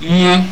ihe